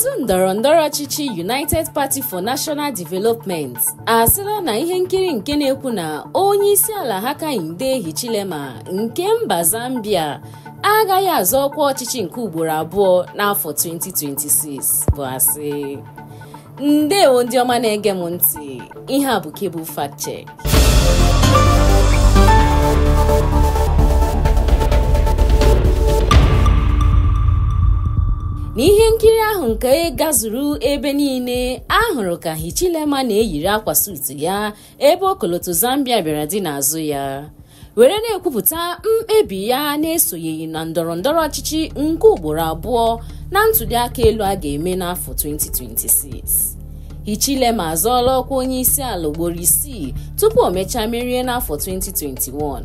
otu ndọrọ ndọrọ ọchịchị United Party for National Development asịla na ihe nkiri nke na-ekwu na onye isi ala Hakainde Hichilema nke mba Zambia agaghị azọ ọkwa ọchịchị nke ugboro abụọ n'afọ 2026 bụ asị ndewo ndị ọma na-ege m ntị ihe a bụ Cable n'ihe nkiri ahụ nke gazuru ebe niile a hụrụ ka hichilema na-eyiri akwa sutu ya ebe ọkọlọtọ zambia bịara dị n'azụ ya were na-ekwupụta mkpebi ya na-esonyeghị na ndọrọ ndọrọ ọchịchị nke ugboro abụọ na ntuli aka elu a ga-eme n'afọ 2026 hichilema azọọla ọkwa onye isi ala ugboro isii tupu o mechaa merie n'afọ 2021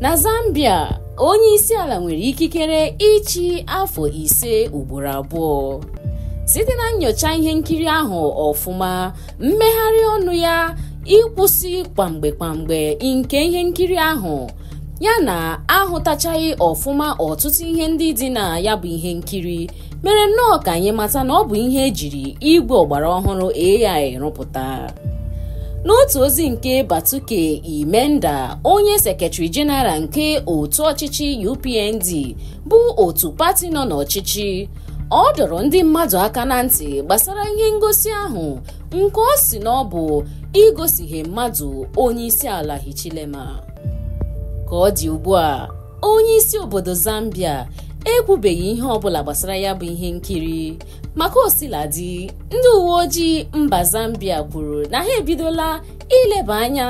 na zambia onye isi ala nwere ikikere ịchị afọ ise ugboro abụọ site na nyocha ihe nkiri ahụ ọfụma mmegharị ọnụ ya ịkwụsị kwamgbe kwamgbe nke ihe nkiri ahụ ya na ahụtachaghị ọfụma ọtụtụ ihe ndị dị na ya bụ ihe nkiri mere nnọọ ka anyị mata na ọ bụ ihe ejiri igwe ọgbara ọhụrụ AI rụpụta n'otu ozi nke Batuke Imenda onye sekretari jeneral nke otu ọchịchị UPND bụ otu pati nọ n'ọchịchị ọ dọrọ ndị mmadụ aka na ntị gbasara ihe ngosi ahụ nke ọ si na ọ bụ igosighe mmadụ onye isi ala Hichilema ka ọ dị ugbu a onye isi obodo Zambia ekwubeghị ihe ọbụla gbasara ya bụ ihe nkiri maka osiladi ndị uwe ojii mba Zambia kwuru na ha ebidola ileba anya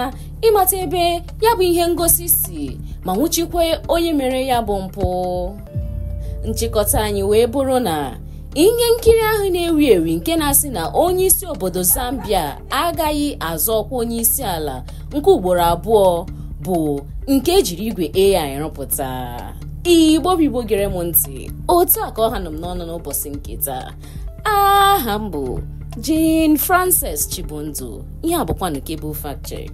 ịmata ebe ya bụ ihe ngosi si ma nwụchikwe onye mere ya bụ mpụ nchịkọta anyị wee bụrụ na ihe nkiri ahụ na-ewi ewi nke na-asị na onye isi obodo Zambia agaghị azọ ọkwa onye isi ala nke ugboro abụọ bụ nke ejiri igwe AI rụpụta igbo bụ gere m ntị otu a ka ọ ha nọ m n'ọnụ n'ụbọchị nke taa aha m bụ Jane Frances Chibundu ihe abụkwanụ kebụl fact check